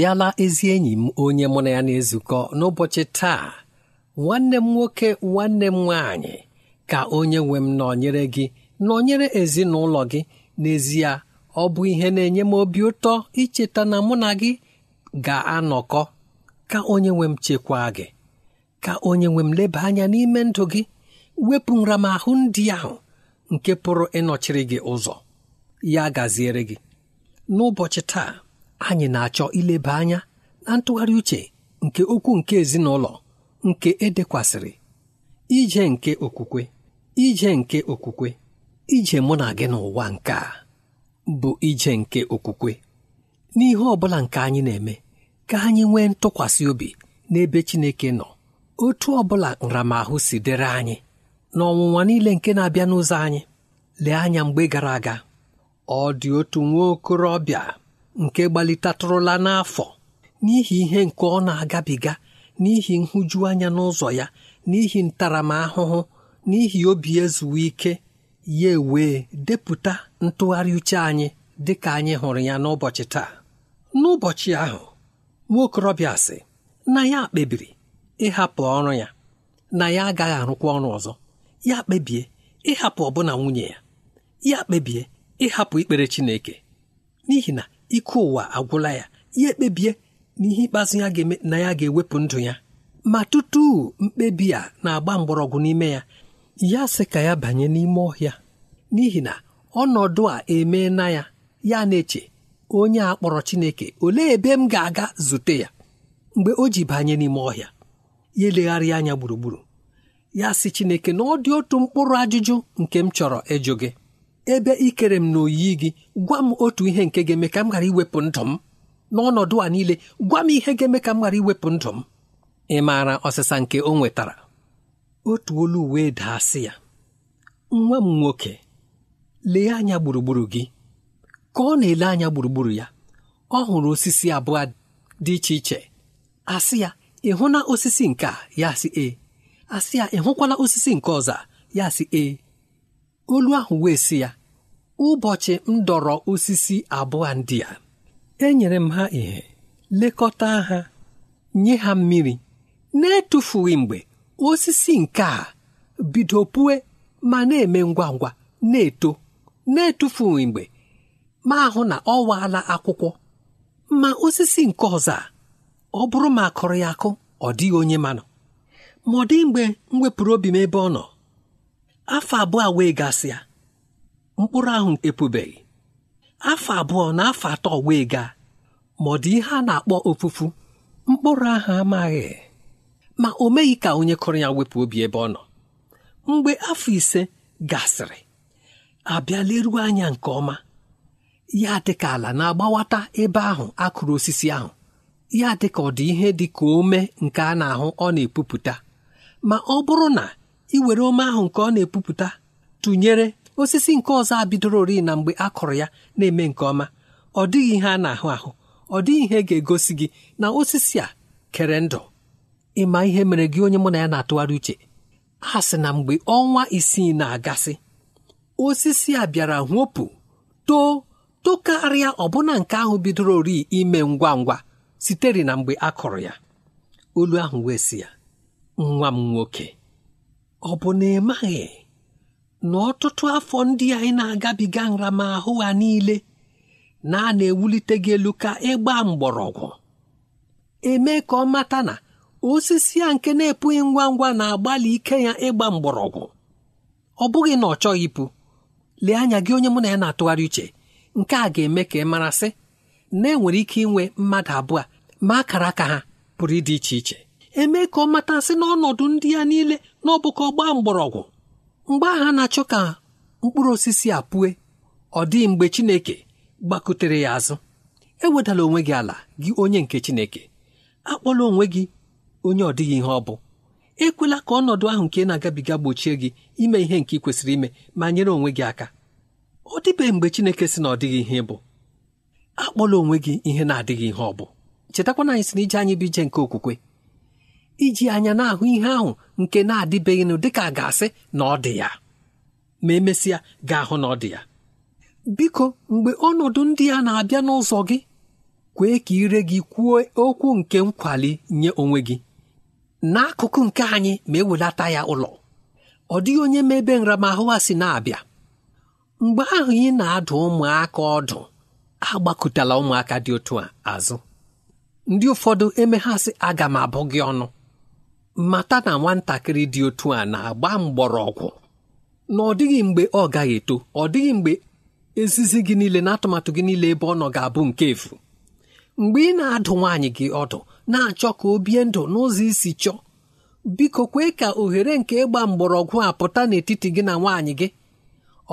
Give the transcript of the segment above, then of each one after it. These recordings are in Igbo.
abịala ezi enyi m onye mụ na ya na-ezukọ n'ụbọchị taa nwanne m nwoke nwanne m nwaanyị ka onye nwe m nọnyere gị nọnyere ezinụlọ gị n'ezie ọ bụ ihe na-enye m obi ụtọ icheta na mụ na gị ga-anọkọ ka onye nwe m chekwaa gị ka onye nwe m leba anya n'ime ndụ gị wepụ nramahụ ndị ahụ nke pụrụ ịnọchiri gị ụzọ ya gaziere gị n'ụbọchị taa anyị na-achọ ileba anya na ntụgharị uche nke okwu nke ezinụlọ nke edekwasịrị ije nke okwukwe ije nke okwukwe ije mụ na gị n'ụwa nke a bụ ije nke okwukwe n'ihe ọ bụla nke anyị na-eme ka anyị nwee ntụkwasị obi n'ebe Chineke nọ otu ọ bụla nramahụ si dịrị anyị na ọnwụnwa niile nke na-abịa n'ụzọ anyị lee anya mgbe gara aga ọ dị otu nwa okorobịa nke gbalitatụrụla n'afọ n'ihi ihe nke ọ na-agabiga n'ihi nhụjuanya n'ụzọ ya n'ihi ntaramahụhụ n'ihi obi ezuwe ike ya wee depụta ntụgharị uche anyị dị ka anyị hụrụ ya n'ụbọchị taa n'ụbọchị ahụ nwa okorobịa sị na ya kpebiri ịhapụ ọrụ ya na ya agaghị arụkwa ọrụ ọzọ ya kpebie ịhapụ ọbụna nwunye ya ya kpebie ịhapụ ikpere Chineke n'ihi na ike ụwa agwụla ya ya ekpebie na ihe ikpeazụ ya ga-eme na ya ga-ewepụ ndụ ya ma tutu mkpebi a na-agba mgbọrọgwụ n'ime ya ya sị ka ya banye n'ime ọhịa n'ihi na ọnọdụ a emee na ya ya na-eche onye a kpọrọ Chineke olee ebe m ga-aga zute ya mgbe o ji banye n'ime ọhịa ya elegharịa anya gburugburu ya sị Chineke na ọ dị otu mkpụrụ ajụjụ nke m chọrọ ịjụ gị ebe ị kere m n'oyiyi gị gwa m otu ihe nke ga-eme ka m ghara iwepụ ndụ m n'ọnọdụ a niile gwa m ihe ga-eme ka m ghara iwepụ ndụ m ị maara ọsịsa nke o nwetara otu olu wee daa sị ya nwa m nwoke lee anya gburugburu gị ka ọ na-ele anya gburugburu ya ọ hụrụ osisi abụọ dị iche iche asị ya ị hụla osisi nke a ya sị ee asị ya ị hụkwala osisi nke ọzọ ya sị ee olu ahụ wee sị ya ụbọchị m dọrọ osisi abụọ ndị a enyere m ha ihe lekọta ha nye ha mmiri na-etufughị mgbe osisi nke a bido ma na-eme ngwa ngwa na-eto na-etufughị mgbe ma ahụ na ọ waala akwụkwọ ma osisi nke ọzọ a ọ bụrụ ma akụrụ ya akụ ọ dịghị onye manụ ma ọ dịghị mgbe m wepụrụ obi m ebe ọ nọ afọ abụọ wee gasịa mkpụrụ ahụ epubeghị afọ abụọ na afọ atọ wee gaa ma ọ dị ihe a na-akpọ ofufu mkpụrụ ahụ amaghị ma o meghị ka onye kụrụ ya wepụ obi ebe ọ nọ mgbe afọ ise gasịrị abịa anya nke ọma ya dị ka ala na-agbawata ebe ahụ akụrụ osisi ahụ ya dị ka ọ dị ihe dị ka ome nke a na-ahụ ọ na-epupụta ma ọ bụrụ na iwere ome ahụ nke ọ na-epupụta tụnyere osisi nke ọzọ a ori na mgbe a kụrụ ya na-eme nke ọma ọ dịghị ihe a na-ahụ ahụ ọ dịghị ihe ga-egosi gị na osisi a kere ndụ ịma ihe mere gị onye mụ na ya na-atụgharị uche a sị na mgbe ọnwa isii na-agasị osisi a bịara hwopụ too tokarịa ọbụna nke ahụ bidoro ori ime ngwa ngwa sitere na mgbe a kụrụ ya olu ahụ wee si ya nwa m nwoke ọ bụ na ị maghị na ọtụtụ afọ ndị anyị na-agabiga nramahụ ha niile na a na-ewulite gị elu ka ịgba mgbọrọgwụ eme ka ọ mata na osisi a nke na-epụghị ngwa ngwa na-agbalị ike ya ịgba mgbọrọgwụ ọ bụghị na ọ chọghị ịpụ lee anya gị onye mụ na ya na-atụgharị uche nke a ga-eme ka ị marasị na enwere ike inwe mmadụ abụọ ma akara aka ha pụrụ ịdị iche iche eme ka ọ matasị n'ọnọdụ ndị ya niile n'ọbụkọ ọbụka mgbọrọgwụ mgbe agha na-achọ ka mkpụrụ osisi a pụe ọ dịghị mgbe Chineke gbakutere ya azụ ewedala onwe gị ala gị onye nke Chineke akpọla onwe gị onye ọ dịghị ihe ọ bụ ekwela ka ọnọdụ ahụ nke na-agabiga gbochie gị ime ihe nke ị kwesịrị ime ma nyere onwe gị aka ọ dịbeghị mgbe Chineke sị na ọ dịghị ihe bụ akpọla onwe gị ihe na-adịghị ihe ọ bụ chetakwana anyị sị na anyị bụ ije nke okwukwe iji anya na-ahụ ihe ahụ nke na-adịbeghịnụ dịka ga-asị na ọ dị ya ma emesịa ga-ahụ na ọ dị ya biko mgbe ọnọdụ ndị a na-abịa n'ụzọ gị kwee ka ire gị kwuo okwu nke nkwali nye onwe gị n'akụkụ nke anyị ma ewelata ya ụlọ ọ dịghị onye ma ebe nramahụ a si na-abịa mgbe ahụ ị na-adụ ụmụaka ọdụ agbakụtala ụmụaka dị otu a azụ ndị ụfọdụ emeghasị aga m abụ gị ọnụ mata na nwatakịrị dị otu a na-agba mgbọrọgwụ na ọ dịghị mgbe ọ gaghị eto ọ dịghị mgbe ezizi gị niile na atụmatụ gị niile ebe ọ nọ ga-abụ nke efu mgbe ị na-adụ nwaanyị gị ọdụ na-achọ ka o bie ndụ n'ụzọ isi chọọ biko kwee ka ohere nke ịgba mgbọrọgwụ a pụta n'etiti gị na nwaanyị gị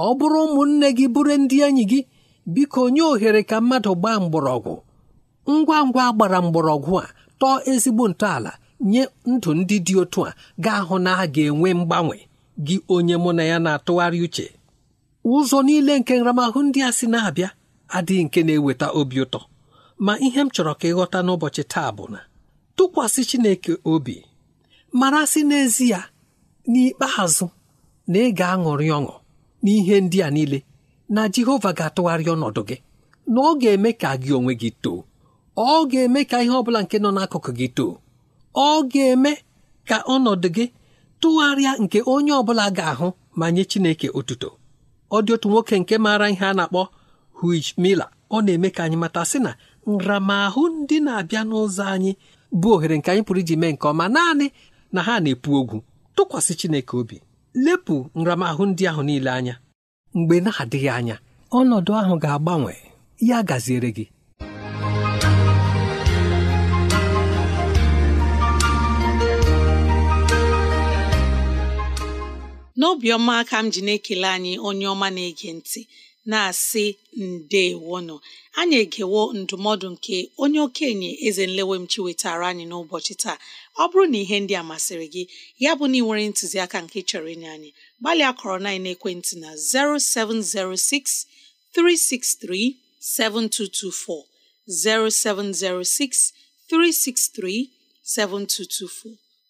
ọ bụrụ ụmụnne gị bụrụ ndị enyi gị biko nye ohere ka mmadụ gbaa mgbọrọgwụ ngwa ngwa gbara mgbọrọgwụ a tọọ ezigbo ntọala nye ndụ ndị dị otu a ga-ahụ na a ga-enwe mgbanwe gị onye mụ na ya na-atụgharị uche ụzọ niile nke nramahụ ndị a si na-abịa adịghị nke na-eweta obi ụtọ ma ihe m chọrọ ka ịghọta n'ụbọchị taa bụ na tụkwasị Chineke obi mara sị n'ezie n'ikpeazụ na ị ga-aṅụrị ọṅụ n'ihe ndị a niile na Jehova ga-atụgharị ọnọdụ gị na ọ ga-eme ka gị onwe gị too ọ ga-eme ka ihe ọ bụla nke nọ n'akụkụ gị too ọ ga-eme ka ọnọdụ gị tụgharịa nke onye ọ bụla ga-ahụ ma nye Chineke otuto ọ dị otu nwoke nke maara ihe a na-akpọ Huij mila ọ na-eme ka anyị mata sị na nramahụ ndị na-abịa n'ụzọ anyị bụ ohere nke anyị pụrụ iji mee nke ọma naanị na ha na-epu ogwu tụkwasị Chineke obi lepụ nramahụ ndị ahụ niile anya mgbe na-adịghị anya ọnọdụ ahụ ga-agbanwe ya gaziere gị n'obiọma ka m ji na-ekele anyị onye ọma na-ege ntị na-asị ndeewono anyị egewo ndụmọdụ nke onye okenye eze nlewemchi wetara anyị n'ụbọchị taa ọ bụrụ na ihe ndị a masịrị gị ya bụ na ị nwere ntụziaka nke chọrọ inye anyị gbalịa kọrọ na ekwentị na 0706 363 7224 0706 363 7224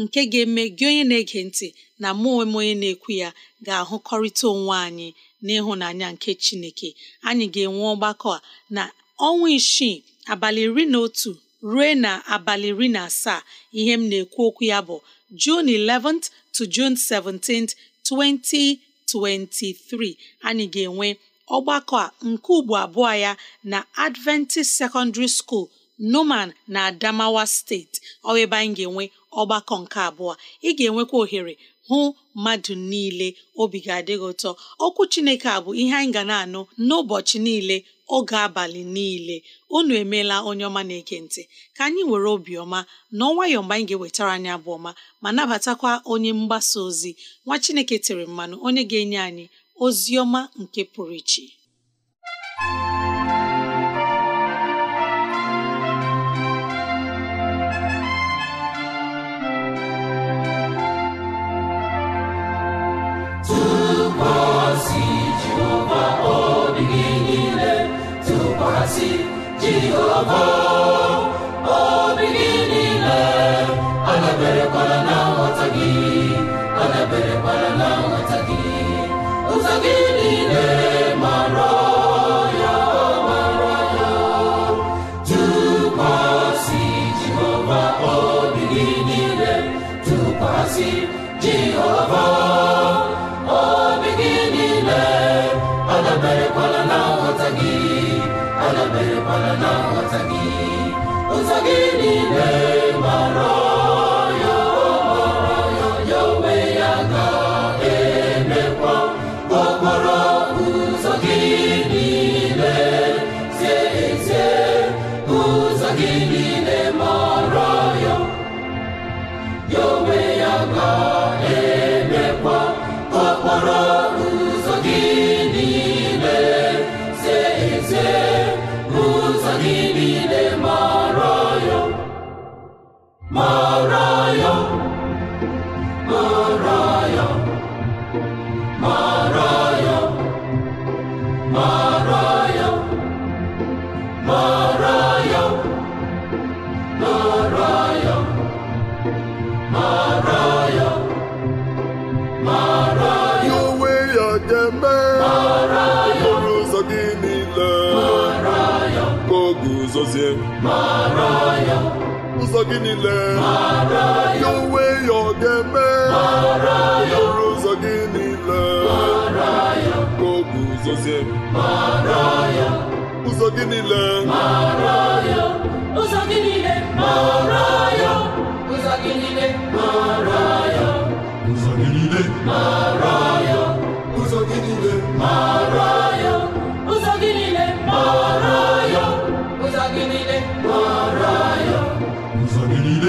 nke ga-eme gị onye na-ege ntị na mụ onwe m onye na-ekwu ya ga-ahụkọrịta onwe anyị n'ịhụnanya nke Chineke anyị ga-enwe ọgbakọ a na ọnwa isii abalị iri na otu ruo na abalị iri na asaa ihe m na-ekwu okwu ya bụ June 11th to June 17th 2023 anyị ga-enwe ọgbakọ a nke ugbo abụọ ya na Adventist Secondary School Numan na Adamawa steeti ọ ebe anyị ga-enwe ọgbakọ nke abụọ ị ga-enwekwa ohere hụ mmadụ niile obi ga adịghị ụtọ okwu Chineke a bụ ihe anyị ga na-anụ n'ụbọchị niile oge abalị niile unu emeela onye ọma na ekentị ka anyị were obiọma na ọnwayọ mgbe anyị ga-ewetara anyị abụ ọma ma nabatakwa onye mgbasa ozi nwa Chineke tere mmanụ onye ga-enye anyị ozi ọma nke pụrụ iche gị niile ya onwe ya ọ ga-eme ọrụ ụzọ gị niile ka ụzọ gị niile ụzọ gị niile ụzọ gị niile ụzọ gị niile ya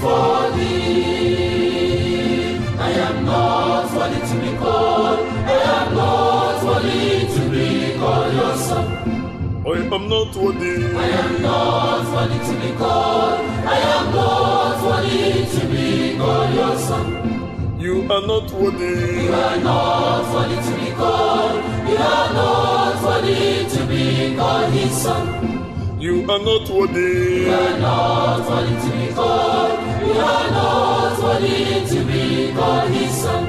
before I am not worthy to be called. I am not worthy to be called your son. I am not worthy. I am not worthy to be called. I am not worthy to be called your son. You are not worthy. You are not worthy to be called. You are not worthy to be called his son. You are not worthy. You are not worthy to be called. You are not worthy to be called His son.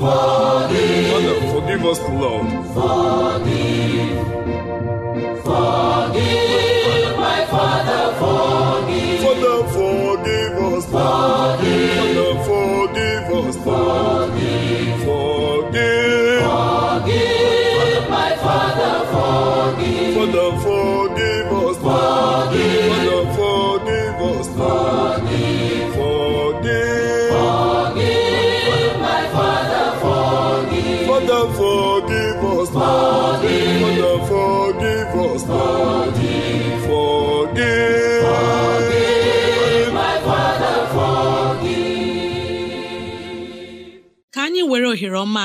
Forgive. Father, forgive us, Lord. Forgive. Forgive, my Father, forgive. Father, forgive us. Forgive. Father, forgive us. Forgive.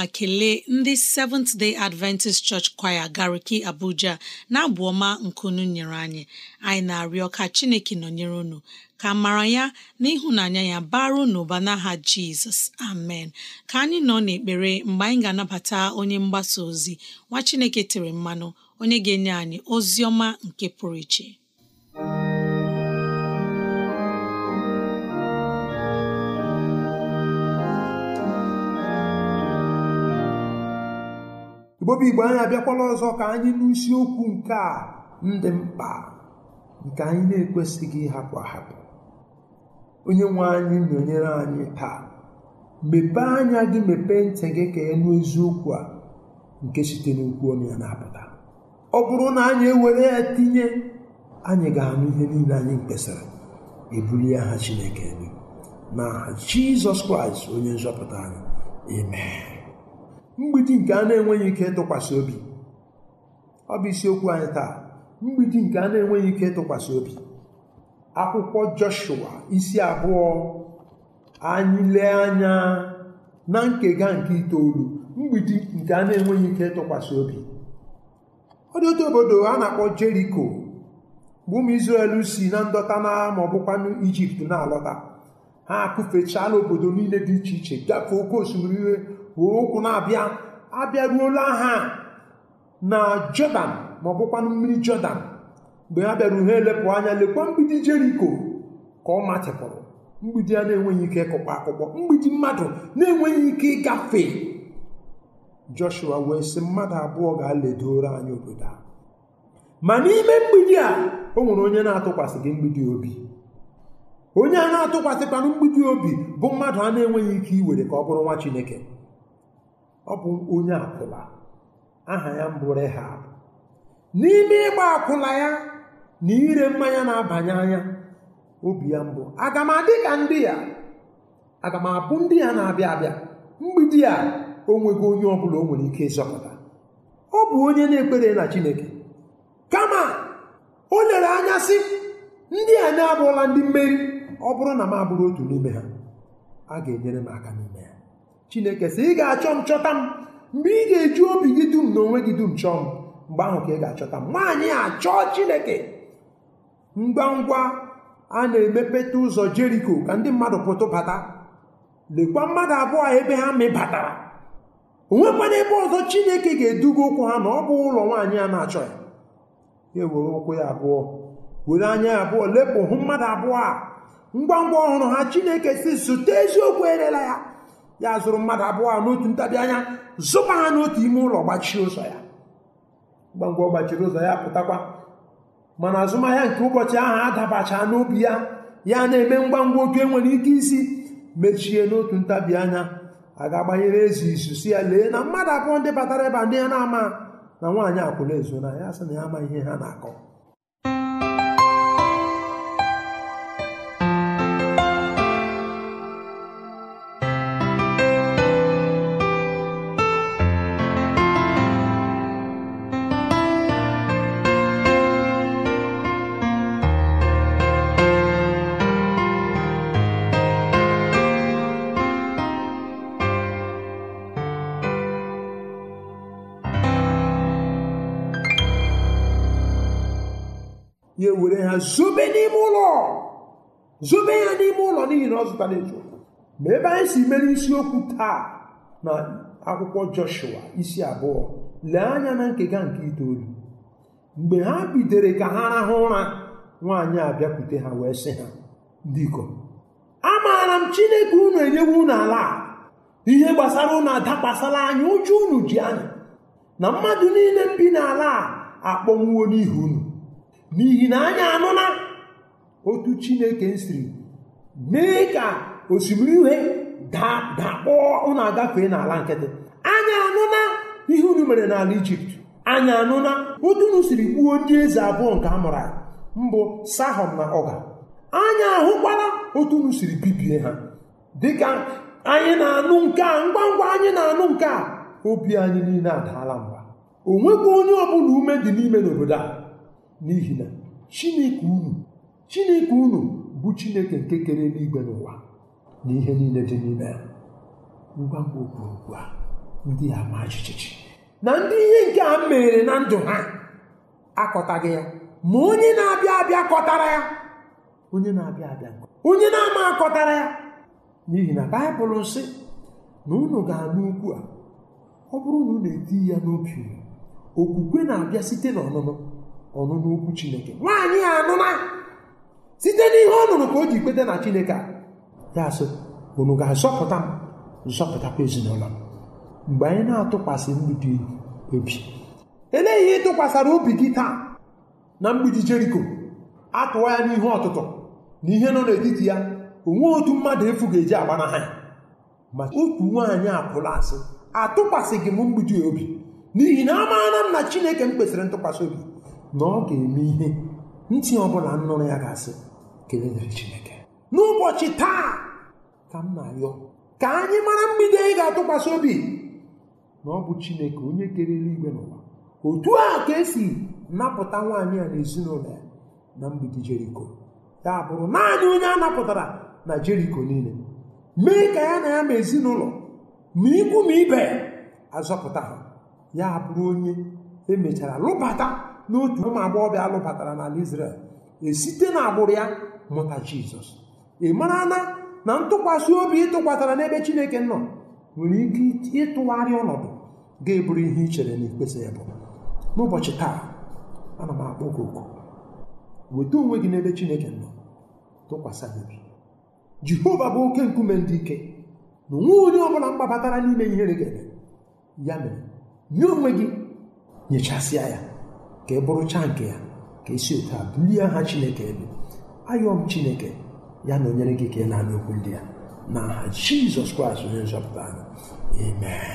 ma kelee ndị Seventh Day Adventist Church Choir Gariki Abuja na-abụ ọma nkunu nyere anyị anyị na-arịọ ka Chineke nọ nọnyere unu ka mara ya na ịhụnanya ya baru n'ụba n'aha Jizọs amen ka anyị nọ n'ekpere mgbe anyị ga-anabata onye mgbasa ozi nwa Chineke tere mmanụ onye ga-enye anyị ozi ọma nke pụrụ iche bobi igbo anyị abịakwala ọzọ ka anyị n'isiokwu nke a ndị mkpa nke anyị na-ekwesịghị ịhapụ ahapụ onye nwe anyị nọnyere anyị taa mepee anya gị mepee ntị gị ka enu eziokwu a nke site n'okwu onye ya na-apụta ọ bụrụ na anyị ewere ya tinye anyị ga-anụ ihe niile anyị kpesara e ebuli aha Chineke elu na Jizọs Kraịst onye nzọpụta anyị amen mgbidi nke a na-enweghị ike ịtụkwasị obi ọ bụ isiokwu anyị taa mgbidi nke a na-enweghị ike ịtụkwasị obi akwụkwọ Joshua isi abụọ anyị lee anya na nkega nke itoolu mgbidi nke a na-enweghị ike ịtụkwasị obi ọ dị otu obodo a na-akpọ Jeriko bụ ụmụ Izrel si na ndọta na ma ọ bụkwanụ Ijipt na-alọta ha akụfechala obodo niile dị iche iche gafee oke osimiri were ụkwụ na-abịa abịaruola ha na jọdan ma ọ bụkwanụ mmiri jọdan mgbe ha bịara ha elepụ anya lekwa mgbidi jeriko ka ọ matịpụrụ mgbidi a na-enweghị ike ịkụkpa akpụkpọ mgbidi mmadụ na-enweghị ike ịgafe joshua wee sị mmadụ abụọ ga-aledoro anyị obodo a ma n'ime mgbidi a o nwere onye na-atụkwasị gị mgbidi obi onye a na-atụkwasịkwanụ mgbidi obi bụ mmadụ a na-enweghị ike iwere ka ọ bụrụ nwa chineke ọ bụ onye akwụla aha ya mbụ Rehab n'ime ịgba akwụla ya na ire mmanya na-abanye anya obi ya mbụ aga m adị ka ndị ya aga m abụ ndị ya na-abịa abịa mgbidi a o nweghị onye ọ bụla o nwere ike ịzọpụta ọ bụ onye na-ekpere na Chineke kama o lere anya sị ndị a na-abụọla ndị mmeri ọ bụrụ na m abụrụ otu n'ime ha a ga-enyere m aka n'ime ya chineke sị ị ga-achọ m chọta m mgbe ị ga-eji obi gị dum na onwe gị dum chọọ m mgbe ahụ ka ị ga-achọta m nwaanyị a chọọ chineke ngwa ngwa a na-emepeta ụzọ jeriko ka ndị mmadụ pụtụ bata lekwa mmadụ abụọ ebe ha mebatara onwekwana ebe ọzọ chineke ga-eduga ụkwụ ha na ọ bụ ụlọ nwaanyị a na-achọ ya ya ewere ụkwụ ya abụọ were anya ya abụọ lepụ hụ mmadụ abụọ a ngwa ngwa ọhụrụ ha chineke si zụta eziokwu erela ya ya zụrụ mmadụ abụọ a n'otu ntabi anya zụba ha n'otu ime ụlọ gbachie ụzọ ya ngwangwa gbachiri ụzọ ya pụtakwa mana azụmahịa nke ụbọchị ahụ adabacha n'obi ya ya na-eme ngwa ngwa otu enwere ike isi mechie n'otu ntabi anya a ga-agbanyere ezi izu si ya lee na mmadụ abụọ ndị batara ebe ndị ya na-ama na nwaanyị akwụna ezo na ya sị na ya ama ihe ha na-akọ were ha zobe n'ime ụlọ zobe ya n'ime ụlọ n'ihi na ọ zụtara ezu ma ebe anyị si mere isiokwu taa na akwụkwọ Joshua isi abụọ lee anya na nkega nke itoolu mgbe ha bidere ka ha rahụ ụra nwaanyị a bịakwute ha wee sị ha ndị A amaara m Chineke unu enyewe unu ala ihe gbasara unu adakwasala anya ụjọ unu ji anya na mmadụ niile m n'ala a akpọnwuo n'ihi unu n'ihi na anyị anụna otu chineke siri mee ka osimiri ihe dakpọọ unu agafee n'ala nkịtị anyị anụna ihe unu mere n'ala ijipt anyị anụna otu unu siri gbuo ndị eze abụọ nke a mụrụ mbụ sahọm na ọga anyị ahụkwala otu unu siri bibie ha dịka anyị na-anụ nke a ngwa ngwa anyị na-anụ nke a obi anyị niile adaala mba o nweghị onye ọbụla ume dị n'ime n'obodo a n'ihi na chineke unu chineke unu bụ chineke nke kere eluigwe n'ụwa na ihe niile dị n'ime ya ngwa ngwa okpuru a ndị a ma jijiji na ndị ihe nke a mere na ndụ ha akọtaghị ya ma onye na-abịa abịa kọtara ya onye na-abịa abịa onye na-ama akọtara ya n'ihi na baịbụl sị na unu ga-anụ ukwu a ọ bụrụ na unu eti ya n'obi okwukwe na-abịa site n'ọnụnụ ọnụnụ chineke nwaanyị a anụna site n'ihe ọ nụrụ ka o ji ikpete na chineke a ya asị unu ga-azọpụta m zọpụtakwa ezinụlọ m mgbe anyị na-atụkwasị mgbidi obi elee ihe ịtụkwasara obi gị taa na mgbidi jeriko atụwa ya n'ihe ọtụtụ na ihe nọ n'etiti ya onwe otu mmadụ efu ga-eji agbanaha ya ma otu nwaanyị apụla asị atụkwasịghị m mgbidi obi n'ihi na amaara m na chineke m kwesịrị ntụkwasị obi na ọ ga-eme ihe ntị ọbụla nnụrụ ya ga-asị Chineke n'ụbọchị taa ka m na-arịọ ka anyị mara mgbidi anyị ga-atụkwasị obi na ọ bụ Chineke onye kere eluigwe n'ụwa otu a ka esi napụta nwaanyị a na ezinụlọ ya na mgbidi Jeriko ya bụrụ naanị onye a napụtara na Jeriko niile mee ka ya na ya ma ezinụlọ ma ikwu ma ibe azọpụta ha ya bụrụ onye emechara lụbata n'otu ụmụ agbọghọbịa alụbatara n'ala israel esite n'agbụrụ ya mụta Jizọs ị mara na na ntụkwasị obi ịtụkwasara n'ebe Chineke nọ nwere ike ịtụgharị ọnọdụ ga-eburu ihe ichere chere na ikpesa ya bụ n'ụbọchị taa ana m akpọ gị oku weta onwe gị n'ebe Chineke nọ tụkwasị obi Jehova bụ oke nkume ndị ike na onwe onye bụla mgbabatara n'ime ihere ga-eme ya mere nye onwe gị nyechasịa ya ka ị bụrụcha nke ya ka esi otu a bulie aha chineke elu ayọọ m chineke ya na onyere gị ka ị na-anụ okwu ndị ya na aha jizọs kraịst onye nzọpụta anyị amen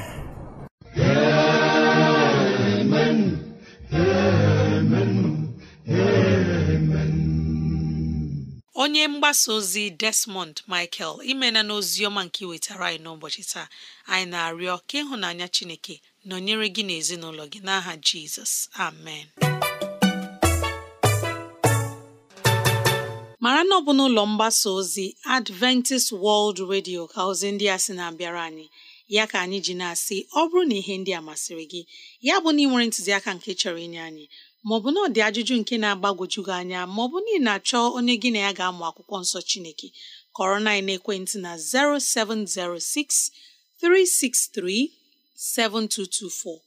onye mgbasa ozi desmond michael imena ozioma nke iwetara anyị n'ụbọchị taa anyị na-arịọ ka ịhụnanya chineke nọnyere gị na ezinụlọ gị n'aha jizọs amen mara na ọ bụ n'ụlọ mgbasa ozi adventist world radio ka ozi ndị a sị na-abịara anyị ya ka anyị ji na-asị ọ bụrụ na ihe ndị a masịrị gị ya bụ na ị nwere ntụziaka nke chọrọ inye anyị maọbụ na ọ dị ajụjụ nke na-agbagwojughị anya maọbụ na ị na-achọ onye gị na ya ga-amụ akwụkwọ nsọ chineke kọrọ na ekwentị na 0706 363 7224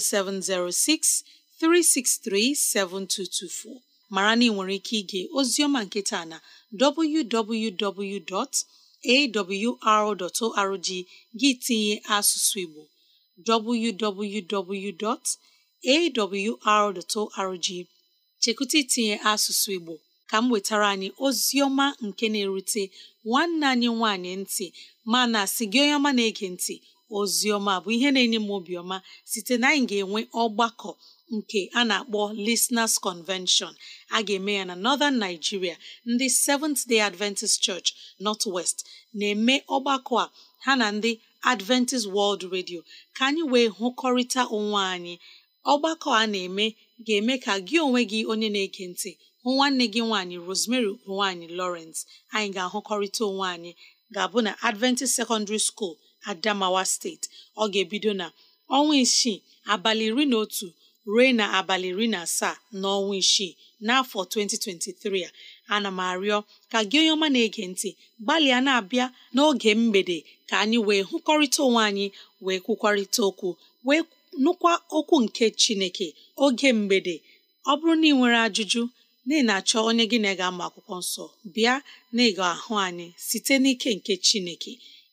0706 363 7224 mara na ị nwere ike ige ozioma nketa na www.awr.org gị tinye asụsụ Igbo www.awr.org chekụta itinye asụsụ Igbo ka m wetara anyị Ozioma nke na-erute nwanne anyị nwanyị ntị mana sị gị onye ọma na-ege ntị Ozioma bụ ihe na-enye m obiọma site na anyị ga-enwe ọgbakọ nke a na-akpọ Listeners Convention a ga-eme ya na Northern Nigeria ndị Seventh Day Adventist Church North West na-eme ọgbakọ a ha na ndị Adventist World Radio ka anyị wee hụkọrịta onwe anyị ọgbakọ a na-eme ga-eme ka gị onwe gị onye na-ege ntị hụ nwanne gị nwaanyị Rosemary nwaanyị Lawrence anyị ga-ahụkọrịta onwe anyị ga-abụ na Adventist Secondary School adamawa steeti ọ ga-ebido na ọnwa isii abalị iri na otu ruo na abalị iri na asaa n'ọnwa isii n'afọ 2023 a ana m arịọ ka gị onye ọma na-ege ntị gbalịa na-abịa n'oge mgbede ka anyị wee hụkọrịta onwe anyị wee kwukwarịta okwu wee nụkwa okwu nke chineke oge mgbede ọ bụrụ na ị nwere ajụjụ na achọ onye gị na ga-ama akwụkwọ nsọ bịa na ịga ahụ anyị site n'ike nke chineke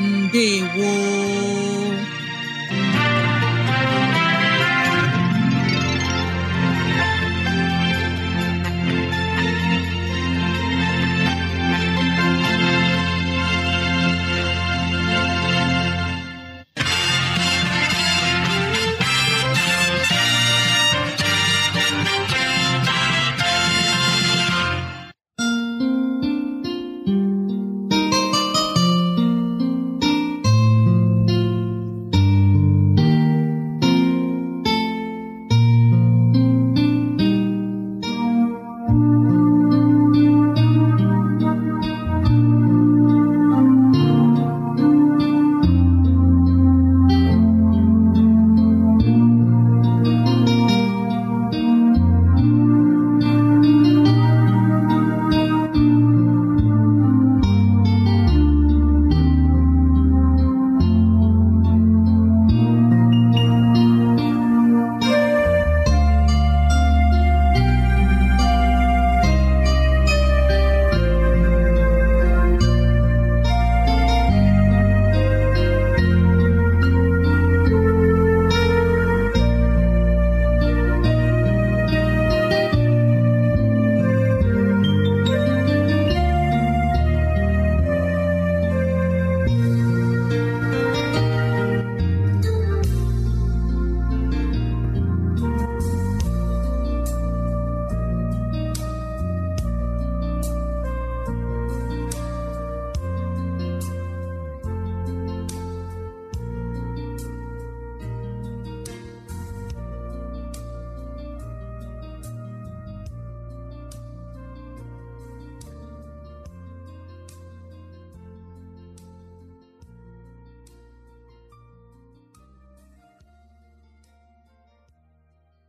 ndewo